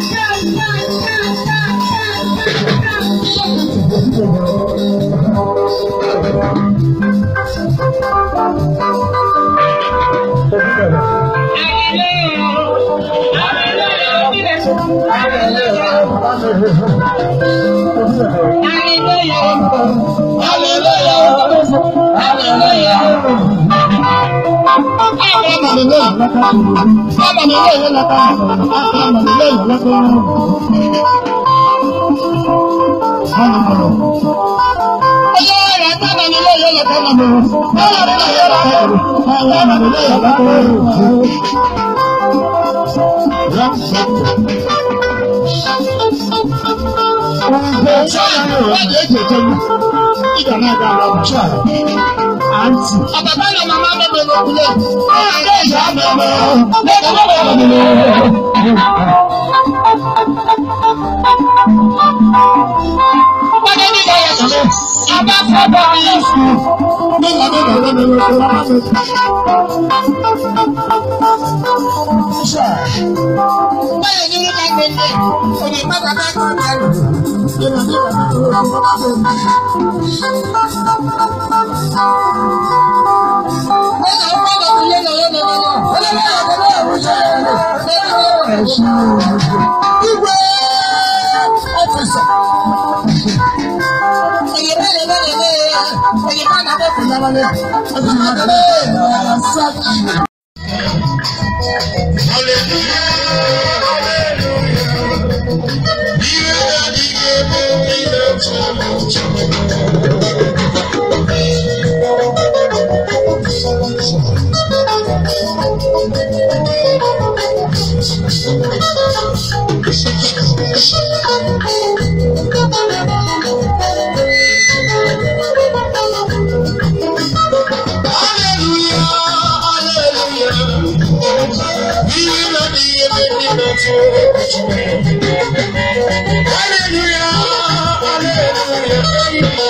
Hallelujah. Hallelujah. Hallelujah ọmọ mi lóyún ọmọ mi lóyún lọ́kọ́ ọmọ mi lóyún lọ́kọ́. Oyè rẹ̀ sábà ní ilé yóò lọ́kọ́ ọmọ mi lóyún lọ́kọ́ ọmọ mi lóyún lọ́kọ́. Ìjọba yóò wá di èjì èjì ẹnu. Ìjọba náà dára ọ̀hún ṣáà àǹtí. Àbàbá yẹn máa máa bẹ̀rẹ̀ lókùnlé. Ọ̀rẹ́ ìyá màmá lẹ́kọ̀ọ́ bẹ̀rẹ̀ lókùnlé. Pọ́njẹ́ ní ìyá yẹn sọ̀rọ̀, àbá fọ́ bọ̀ ní ìsù. Mẹ́ta mẹ́ta lọ́dọ̀ ló tó máa fẹ́. Báyọ̀ méjì Hallelujah. Hallelujah, hallelujah.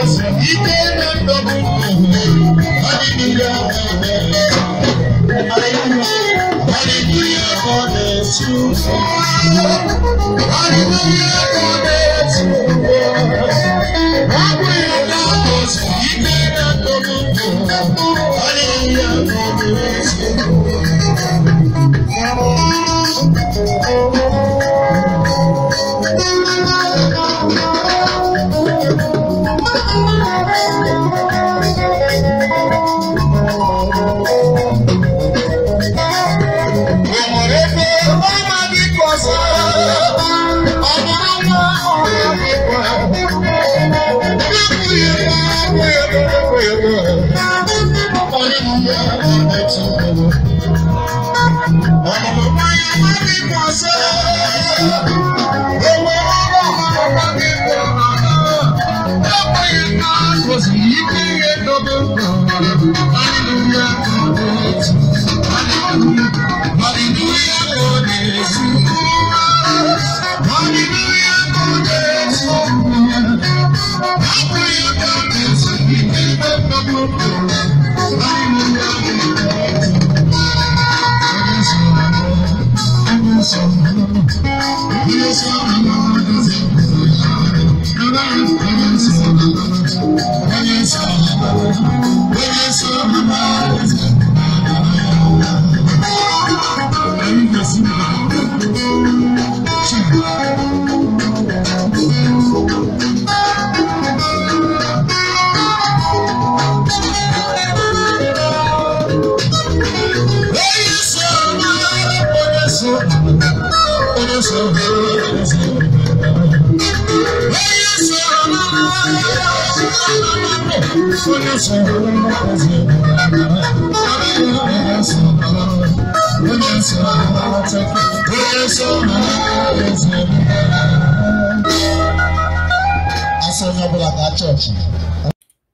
ike na-adọgbu ọdịnihu ọka na-eme ọdịnihu ọka na-esi ụzọ ọdịnihu ọka Yes,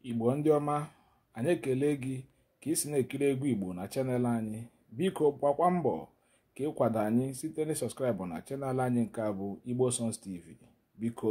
igbo ndị ọma anyị ekele gị ka ị na-ekiri egwu igbo na chanel anyị biko gbakwa mbọ ka ịkwado anyị site na sọskraịbụ na chanel anyị nke a bụ igbo songs tv biko